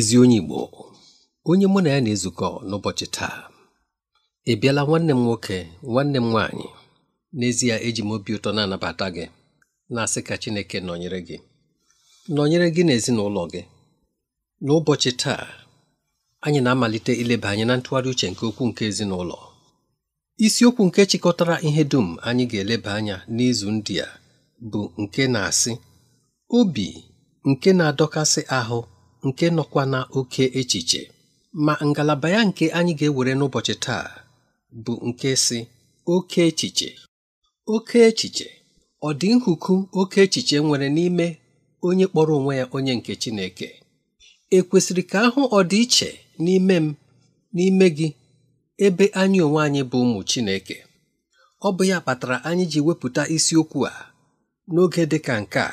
ezi onye Igbo onye mụ na ya na-ezukọ n'ụbọchị taa ị bịala nwanne m nwoke nwanne m nwaanyị n'ezie eji m obi ụtọ na-anabata gị na-asị ka Chineke nọnyere gị nọnyere gị na ezinụlọ gị n'ụbọchị taa anyị na-amalite ileba anyị na ntụgharị uche nke okwu nke ezinụlọ isiokwu nke chịkọtara ihe dum anyị ga-eleba anya n'izu ndị a bụ nke na-asị obi nke na-adọkasị ahụ nke nọkwa na oke echiche ma ngalaba ya nke anyị ga-ewere n'ụbọchị taa bụ nke si oke echiche oke echiche ọ dị nhuku oke echiche nwere n'ime onye kpọrọ onwe ya onye nke Chineke ekwesịrị ka ahụ ọdịiche n'ime m n'ime gị ebe anyị onwe anyị bụ ụmụ Chineke ọ bụ ya kpatara anyị ji wepụta isiokwu a n'oge dị ka nke a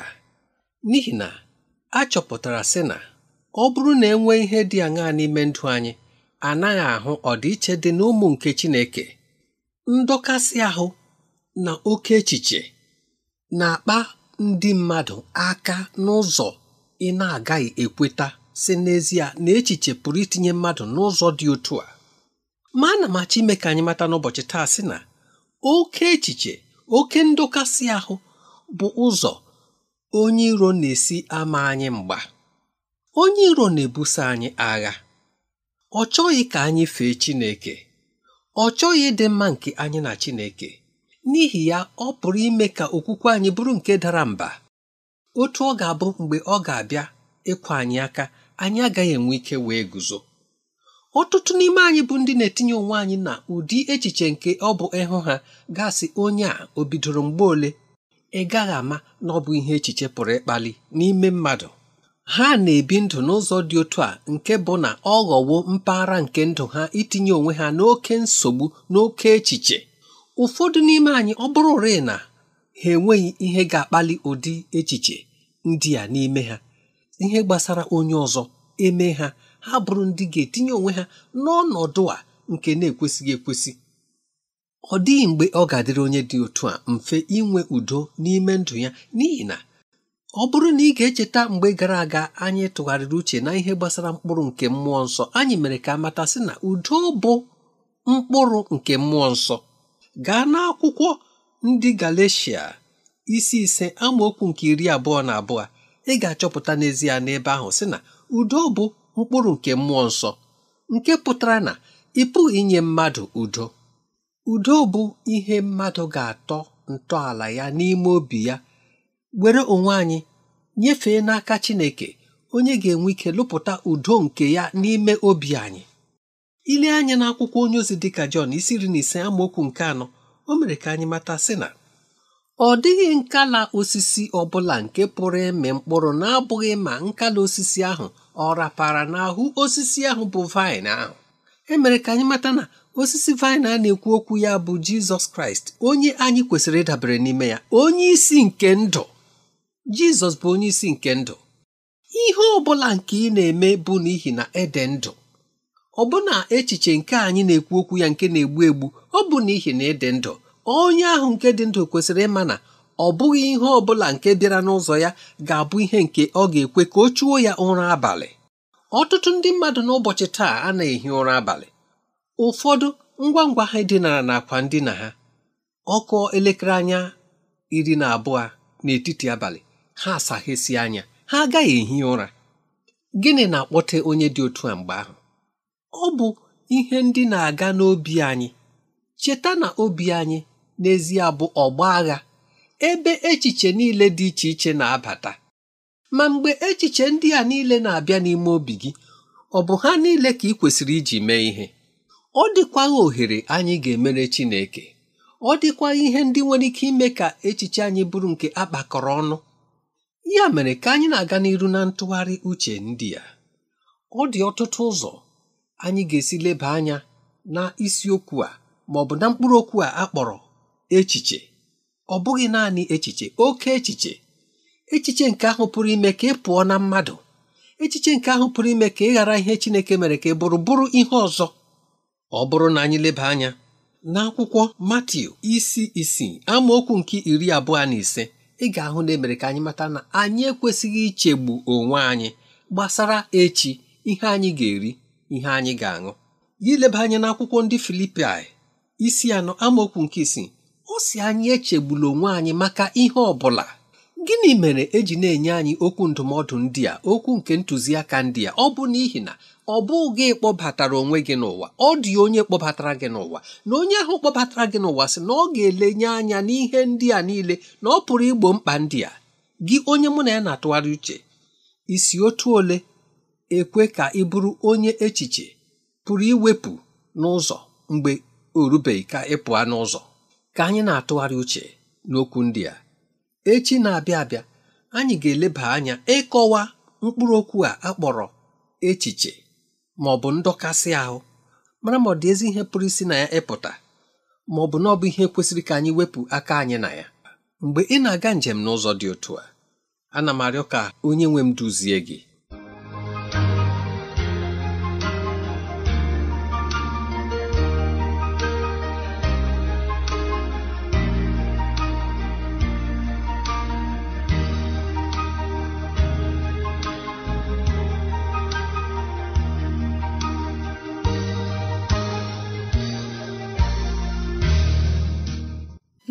n'ihi na a chọpụtara sị na ọ bụrụ na enwee ihe dị aṅaa n'ime ndụ anyị anaghị ahụ ọdịiche dị n'ụmụ nke Chineke ndọkasị ahụ na oke echiche na-akpa ndị mmadụ aka n'ụzọ ị na-agaghị ekweta si n'ezie na echiche pụrụ itinye mmadụ n'ụzọ dị otu a ma na m achọ ime ka anyị mata n'ụbọchị taa sị na oke echiche oke ndokasị ahụ bụ ụzọ onye iro na-esi ama anyị mgba onye iro na-ebuso anyị agha ọ chọghị ka anyị fee Chineke ọ chọghị ịdị mma nke anyị na Chineke n'ihi ya ọ pụrụ ime ka okwukwe anyị bụrụ nke dara mba otu ọ ga-abụ mgbe ọ ga-abịa ịkwa anyị aka anyị agaghị enwe ike wee guzo ọtụtụ n'ime anyị bụ ndị na-etinye onwe anyị na ụdị echiche nke ọ bụ ịhụ ha gasị onye a o bidoro mgbe ole ị gaghị ama na ọ bụ ihe echiche pụrụ ịkpali n'ime mmadụ ha na-ebi ndụ n'ụzọ dị otu a nke bụ na ọ ghọwo mpaghara nke ndụ ha itinye onwe ha n'oke nsogbu n'oke echiche ụfọdụ n'ime anyị ọ bụrụ rịị na ha enweghị ihe ga-akpali ụdị echiche ndị a n'ime ha ihe gbasara onye ọzọ eme ha ha bụrụ ndị ga-etinye onwe ha n'ọnọdụ a nke na-ekwesịghị ekwesị ọ dịghị mgbe ọ ga-adịrị onye dị otu a mfe inwe udo n'ime ndụ ya n'ihi na ọ bụrụ na ị ga-echeta mgbe gara aga anyị tụgharịrị uche na ihe gbasara mkpụrụ nke mmụọ nsọ anyị mere ka amata sị na udo bụ mkpụrụ nke mmụọ nsọ gaa n'akwụkwọ ndị Galeshia isi ise amaokwu nke iri abụọ na abụọ ị ga-achọpụta n'ezie n'ebe ahụ sị na udo bụ mkpụrụ nke mmụọ nsọ nke pụtara na ị inye mmadụ udo udo bụ ihe mmadụ ga-atọ ntọala ya n'ime obi ya were onwe anyị nyefee n'aka Chineke onye ga-enwe ike lụpụta udo nke ya n'ime obi anyị ile anya n'akwụkwọ onye ozi dịka Jọn isi iri na ise amaokwu nke anọ o mere ka anyị mata sị na ọ dịghị nkala osisi ọbụla nke pụrụ ịmị mkpụrụ na-abụghị ma nkala osisi ahụ ọ rapara n'ahụ osisi ahụ bụ vaịn ahụ emere ka anyị mata na osisi vaịn a na-ekwu okwu ya bụ Jizọs Kraịst onye anyị kwesịrị ịdabere n'ime ya onye isi nke ndụ jizọs bụ onye isi nke ndụ ihe ọ bụla nke ị na-eme bụ n'ihi na ede ndụ ọbụna echiche nke anyị na-ekwu okwu ya nke na-egbu egbu ọ bụ n'ihi na ede ndụ onye ahụ nke dị ndụ kwesịrị ịma na ọ bụghị ihe ọ bụla nke bịara n'ụzọ ya ga-abụ ihe nke ọ ga-ekwe ka o chuo ya ụra abalị ọtụtụ ndị mmadụ n'ụbọchị taa a na-ehi ụra abalị ụfọdụ ngwa ngwa ha dinara n'akwa ndina ha ọkụ elekere anya iri na abụọ n'etiti abalị ha asaghịsị anya ha agaghị ehi ụra gịnị na-akpọte onye dị otu a mgbe ahụ ọ bụ ihe ndị na-aga n'obi anyị cheta na obi anyị n'ezie bụ ọgba agha ebe echiche niile dị iche iche na-abata ma mgbe echiche ndị a niile na-abịa n'ime obi gị ọ bụ ha niile ka ị kwesịrị iji mee ihe ọ dịkwaghị ohere anyị ga-emere Chineke ọ dịkwa ihe ndị nwere ike ime ka echiche anyị bụrụ nke akpakọrọ ọnụ ya mere ka anyị na-aga n'iru na ntụgharị uche ndị a ọ dị ọtụtụ ụzọ anyị ga-esi leba anya na isiokwu a ma ọ bụ na mkpụrụ okwu a akpọrọ echiche ọ bụghị naanị echiche oke echiche echiche nke ahụ pụrụ ime ka ị pụọ na mmadụ echiche nke ahụ pụrụ ime ka ị ghara ihe Chineke mere ka ị bụrụ bụrụ ihe ọzọ ọ bụrụ na anyị leba anya n'akwụkwọ akwụkwọ isi isii amaokwu nke iri abụọ na ise ị ga-ahụ na emere ka anyị mata na anyị ekwesịghị ichegbu onwe anyị gbasara echi ihe anyị ga-eri ihe anyị ga-aṅụ ya ileba anya n'akwụkwọ ndị Filipaị isi anọ amaokwu nke isi? ọ si anyị echegbula onwe anyị maka ihe ọ bụla gịnị mere eji na-enye anyị okwu ndụmọdụ ndị a okwu nke ntụziaka ndị a ọ bụ n'ihi na ọ bụghị gị kpọbatara onwe gị n'ụwa ọ dị onye kpọbatara gị n'ụwa na onye ahụ kpọbatara gị n'ụwa sị na ọ ga-elenye anya n'ihe ndị a niile na ọ pụrụ igbo mkpa ndị a gị onye mụ na ya na-atụgharị uche isi otu ole ekwe ka ị bụrụ onye echiche pụrụ iwepụ n'ụzọ mgbe orubeghị ka ịpụọ n'ụzọ ka anyị na-atụgharị uche n'okwu ndị a echi na-abịa abịa anyị ga-eleba anya ịkọwa mkpụrụ okwu a akpọrọ echiche ma ọ bụ ndọkasị ahụ mara ma ọ dị ezi ihe pụrụ isi na ya ịpụta ma ọ bụ na ọ bụ ihe kwesịrị ka anyị wepụ aka anyị na ya mgbe ị na-aga njem n'ụzọ dị otu a ana m arịọ ka onye nwe m duzie gị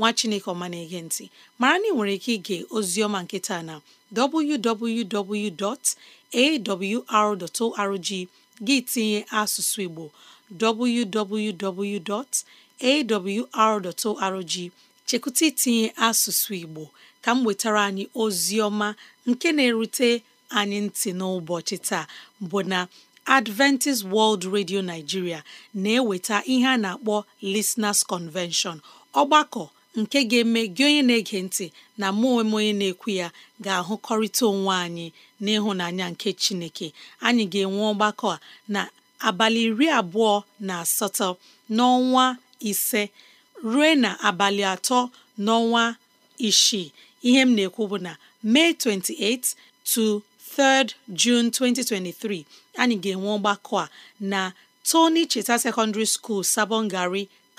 nwa chineke ọma na-ege ntị mara na ị nwere ike ige ozioma nkịta na www.awr.org gị tinye asụsụ igbo www.awr.org chekwụta itinye asụsụ igbo ka m nwetara anyị ọma nke na-erute anyị ntị n'ụbọchị taa bụ na Adventist World Radio Nigeria na-eweta ihe a na-akpọ Listeners Convention ọgbakọ nke ga-eme gị onye na-ege ntị na mụ onwe onye na-ekwu ya ga-ahụkọrịta onwe anyị n'ịhụnanya nke Chineke anyị ga-enwe ọgbakọ a na abalị iri abụọ na asatọ n'ọnwa ise ruo na abalị atọ n'ọnwa isii ihe m na-ekwu bụ na May 28 to 3rd 2023 anyị ga-enwe ọgbakọ a na Tony Cheta Secondary School Sabongari.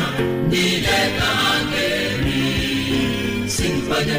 ha niile ka ga-eri si mkpanye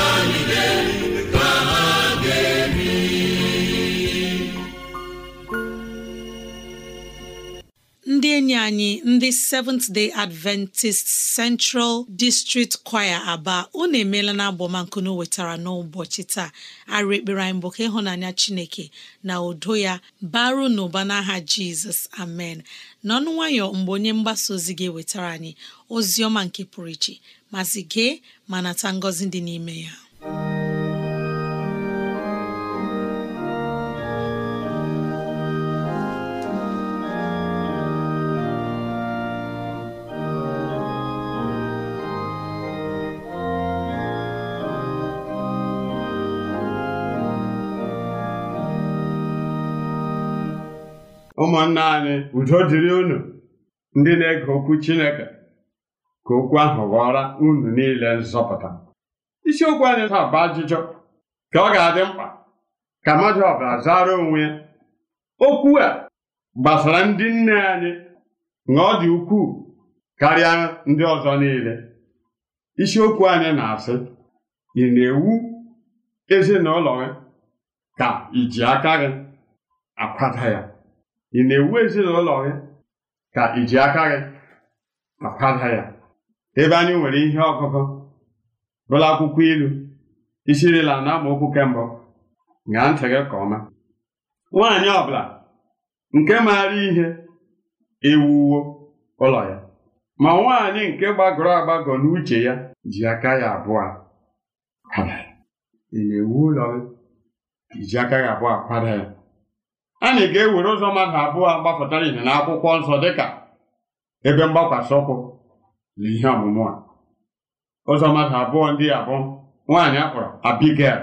enyi anyị ndị Seventh Day Adventist Central District Choir Aba unu emeela na abọmankunu wetara n'ụbọchị taa arụ ekpere anyị bụ ka ịhụnanya Chineke na udo ya baru n'ụba n'aha Jizọs amen n'ọnụ nwayọ mgbe onye mgbasa ozi ga-ewetara anyị ozi ọma nke pụrụ iche masị gee ma nata ngọzi dị n'ime ya ụmụnna anyị udo dịrị unu ndị na-ege okwu Chineke ka okwu ahụ ghọọra unu niile nzọpụta isiokwu anyị taa bụ ajụjụ ka ọ ga-adị mkpa ka mmadụ ọbụla zara onwe ya okwu a gbasara ndị nne anyị na ọ dị ukwuu karịa ndị ọzọ niile isiokwu anyị na-asị ị na-ewu ezinụlọ gị ka iji aka gị akwada ya ị na-ewu ezinụlọ gị ka iji ji aka gị ya ebe anyị nwere ihe ọgụgụ bụrụ akwụkwọ ilu isirila na okwu kembụ ṅaa ntị gị ka ọma nwaanyị ọbụla nke maara ihe ewuwo ụlọ ya ma nwaanyị nke gbagọrọ agbagọ n'uche ya ji aka ya abụọ ị na-ewu ụlọ gị iji aka gị abụọ akwada ya anyị ga-ewere ụzọ mmadụ abụọ gbapụtara ihe na akwụkwọ nsọ dịka ebe mgbakwasị ụkwụ na ihe ọmụmụ a ụzọ mmadụ abụọ ndị a bụ nwaanyị akpọrọ abigel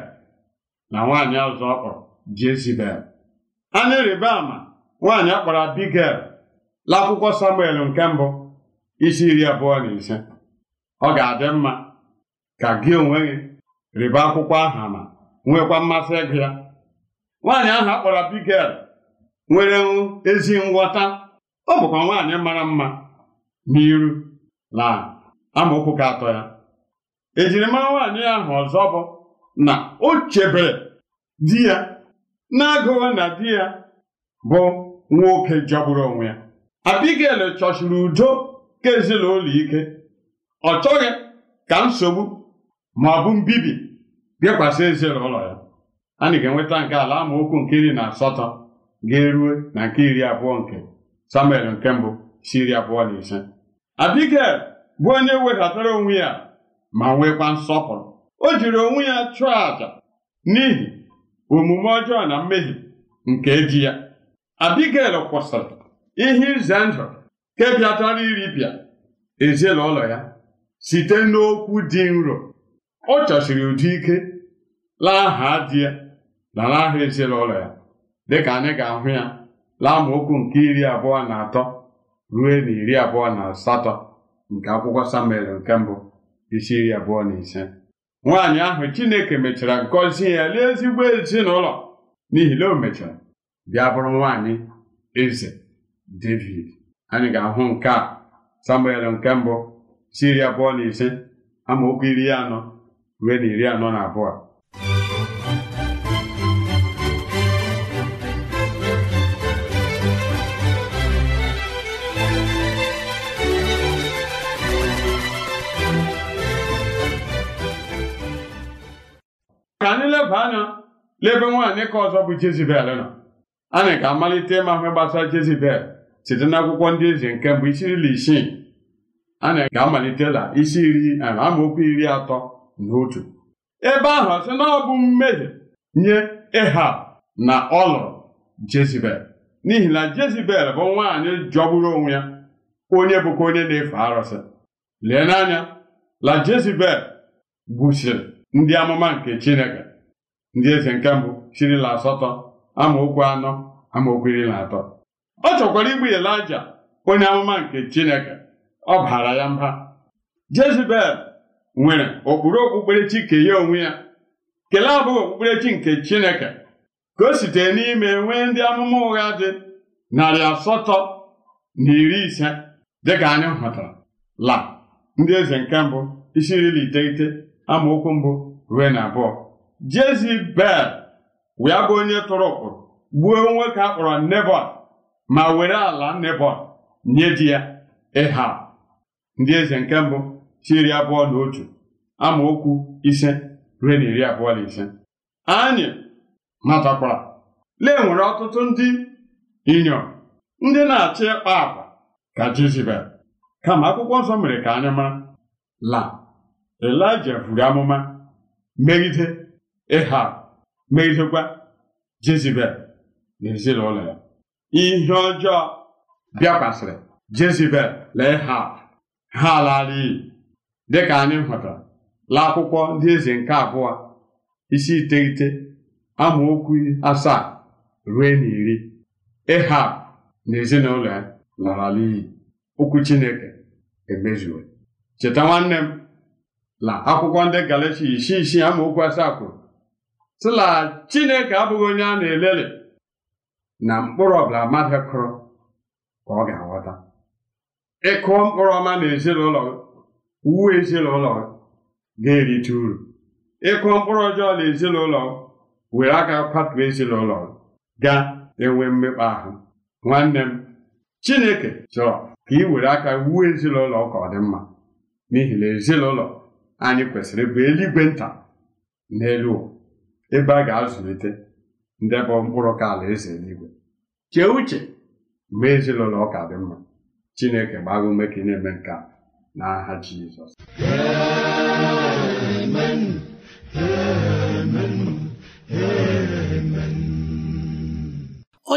na nwaanyị ọzọ ọkpọrọ Jezibel anya rịba ama nwaanyị akpọrọ abigel n'akwụkwọ Samuel nke mbụ isi iri abụọ na ise ọ ga-adị mma ka gị onwe gị rịba akwụkwọ aha ma nwekwa mmasị ịgụ ya nwaanyị ahụ akpọrọ abigel. nwere ezi nghọta ọ bụkwa nwaanyị mara mma n'iru na amaokwu ka atọ ya ejirimara nwaanyị ahụ ọzọ bụ na o chebere di ya na-agụwa na di ya bụ nwoke jọgburu onwe ya abigel chọchiri udo ka ezinụlọ ike ọ chọghị ka nsogbu ma ọ bụ mbibi bịakwasị ezinụlọ ya a ga-enweta nke ala amaokwu nke iri na asatọ ga eruo na nke iri abụọ nke samuel nke mbụ si iri abụọ na ise abigail bụ onye wedatara onwe ya ma nwekwa nsọpụrụ o jiri onwe ya chụọ àjà n'ihi omume ọjọọ na mmehie nke ji ya abigail kwụsịrị ihe ize ndụ nke bịatara iripịa ezinụlọ ya site n'okwu dị nro ọ chọsiri ụdị ike laa aha di ya na aha ezinụlọ ya dịka anyị ga-ahụ ya okwu nke iri abụọ na atọ ruo na iri abụọ na asatọ nke akwụkwọ samuel nke mbụ isi iri abụọ na ise nwaanyị ahụ chineke mechara gọzie ya "Lee ezigbo ezinụlọ n'ihi na o mechara bịa bụrụ nwaanyị eze david anyị ga-ahụ nke a samuel nke mbụ isi iri abụọ na ise amaokwu iri anọ ruo na iri anọ na abụọ ka anyị leba anya lebe nwaanyị ka ọzọ bụ Jezibel nọ anyị ga-amalite ịma ihe gbasara Jezibel site n'akwụkwọ ndị eze nke mbụ isi iri isii anyị ga amalite la isi iri amaokwu iri atọ na otu ebe ahụ ọ sị na ọ bụ mmehie nye Ehab na ọlụrụ lụrụ Jezibel n'ihi na Jezibel bụ nwaanyị jọgburu onwe ya onye bụkwa onye na-efe arụsị lee n'anya la Jezibel gbusiri ndị amụma nke Chineke ndị eze nke mbụ sirila asatọ amaokwu anọ amaokwu iri na atọ ọ chọkwara igbu Elija onye amụma nke Chineke ọ baara ya mba Jezibel nwere okpuru okpukperechi nke ya onwe ya kelee abụghị okpukperechi nke Chineke ka o sitere n'ime nwee ndị amụma ụgha dị narị asatọ na iri ise dịka anyị hụtara la ndị eze nke mbụ isi nri na iteghete amaokwu mbụ ruo na abụọ Jezibel wee bụ onye tụrụ ụkpụrụ gbuo nwoke a kpọrọ Nebọt ma were ala Nebọt nye di ya ịha ndị eze nke mbụ si abụọ na otu amaokwu ise ruo na iri abụọ na ise anyị matakwara lee nwere ọtụtụ ndị inyom ndị na achị ịkpa akpa ka Jezibel kama akwụkwọ nsọ mere ka anyị mara la elija buru amụma megide ịha megidekwa jezibel na ezinụlọ ya ihe ọjọọ bịakwasịrị jezibel na ịha ha ala iyi dịka anyị hụtara la akwụkwọ ndị eze nke abụọ isi iteghete amaokwu asaa ruo na iri ịha na ezinụlọ ya lara iyi okwu chineke emezuo cheta nwanne m la akwụkwọ ndị galatia isi isii amaokwu asaa kwuru sị la chineke abụghị onye a na elele na mkpụrụ ọbụla mmadụ kụrụ ka ọ ga-aghọta ịkụ mkpụrụ ọma na ezinụlọ gị uwe ezinụlọ gị ga-erite uru ịkụ mkpụrụ ọjọọ na ezinụlọ were aka kwatuo ezinụlọ gị ga-enwe mmekpa ahụ nwanne m chineke chọrọ ka ị were aka wuo ezinụlọ ka ọ dị mma n'ihi na ezinụlọ anyị kwesịrị bụ eluigwe nta n'elu ụwa ebe a ga-azụlite ndebe mkpụrụ ka ala eze eluigwe chee uche ma ezinụlọ ọka dị mma chineke gbaa ume ka ị na-eme nke a n'aha Jizọs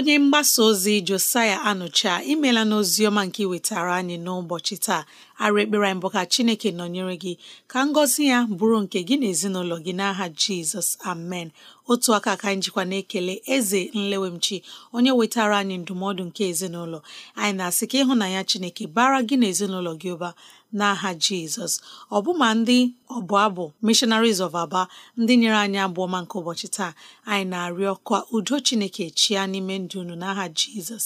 onye mgbasa ozi Josiah Anụcha imela n'ozi nke iwetara anyị n'ụbọchị taa arụ ekpere mbụ bụ ka Chineke nọnyere gị ka ngọzi ya bụrụ nke gị na ezinụlọ gị n'aha Jizọs amen otu aka ka njikwa na-ekele eze nlewemchi onye wetara anyị ndụmọdụ nke ezinụlọ anyị na-asị ka ịhụnanya Chineke bara gị na gị ụba n'aha jizọs ọbụma ndị ọbụ abụ missionaries of aba ndị nyere anyị abụọ nke ụbọchị taa anyị na-arịọ ka udo chineke chia n'ime ndụ unu n'aha jizọs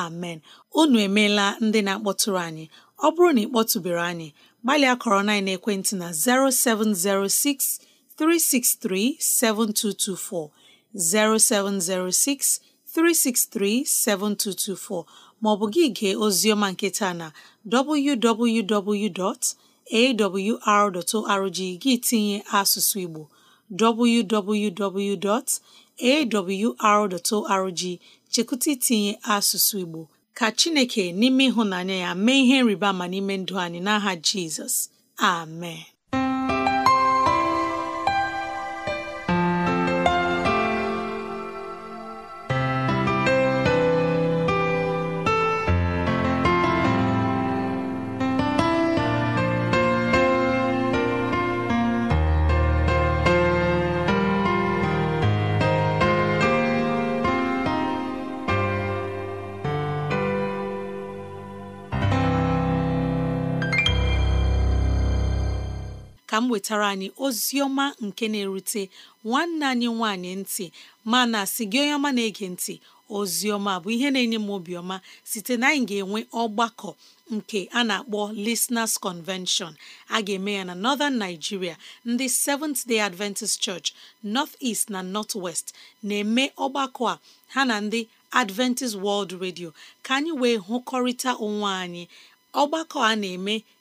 amen unu emeela ndị na-akpọtụrụ anyị ọ bụrụ na ị kpọtụbere anyị gbalịa kọrọ na ekwentị na 0706 363 7224 0706 363 7224 maọbụ gị gee oziọma nke taa na www.awr.org gị tinye asụsụ Igbo www.awr.org chekụta itinye asụsụ Igbo ka Chineke n'ime ịhụnanya ya mee ihe nrịba ma n'ime ndụ anyị n'aha Jizọs amen ka m wetara anyị ozi ọma nke na-erute nwanne anyị nwanyị ntị mana si gị onye ọma na-ege ntị ozi ọma bụ ihe na-enye m obiọma site na anyị ga-enwe ọgbakọ nke a na-akpọ Listeners Convention a ga-eme ya na Northern Nigeria ndị Seventh Day Adventist Church North est na North West na-eme ọgbakọ a ha na ndị Adventist World Radio ka anyị wee hụkọrịta onwe anyị ọgbakọ a na-eme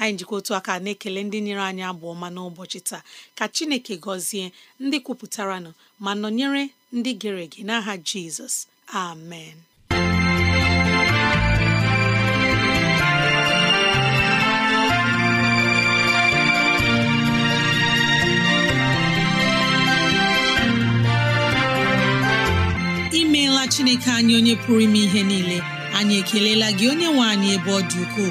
anyị njikọ otu aka na-ekele ndị nyere anyị abụ ọma n'ụbọchị taa ka chineke gọzie ndị kwupụtaranụ ma nọnyere ndị gere ege n'aha jizọs amen imeela chineke anyị onye pụrụ ime ihe niile anyị ekelela gị onye nwe anyị ebe ọ dị ukwuu